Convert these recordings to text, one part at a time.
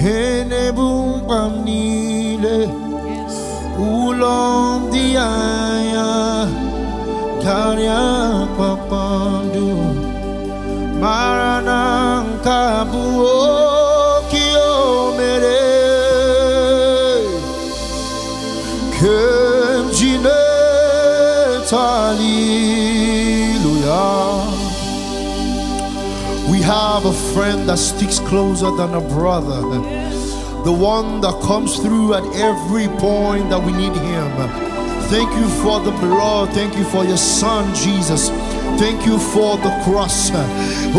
Kene bumbam nile Ulam diaya Karya papandu Maranang kabuo have a friend that sticks closer than a brother. The one that comes through at every point that we need him. Thank you for the blood. Thank you for your son, Jesus. Thank you for the cross. Oh,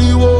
city wall.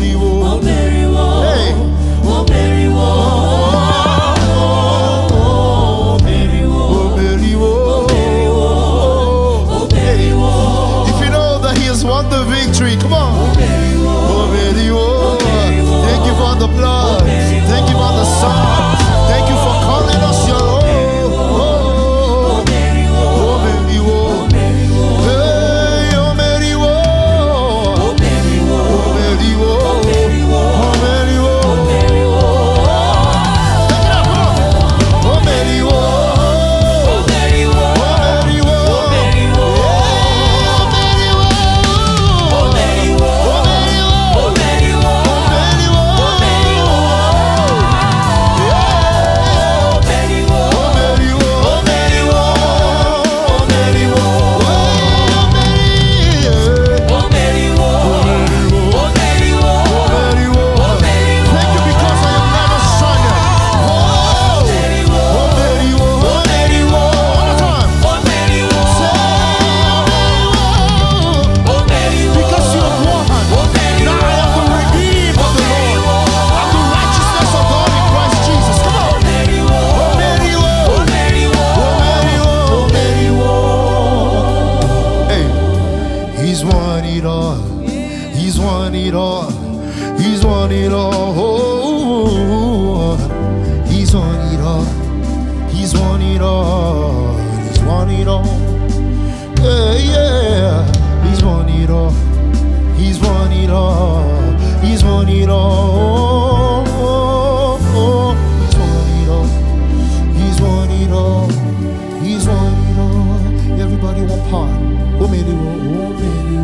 Mary, ó mẹ́rìnwó. ó mẹ́rìnwó. ó mẹ́rìnwó. ó mẹ́rìnwó. ó mẹ́rìnwó. If you know that he has won the victory, come on. Thank you for the blood. He's won it all. He's won it all. He's won it all. Yeah, yeah. He's won it all. He's won it all. He's won it all. He's won it all. He's won it all. He's won it all. Everybody one part. Oh, Mary,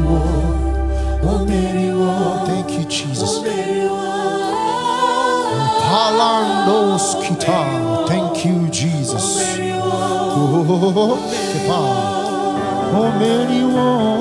oh, oh, Mary, oh. Thank you, Jesus. Los Kita. Thank you, Jesus. Oh, oh, oh, oh, oh, oh, oh, oh, oh,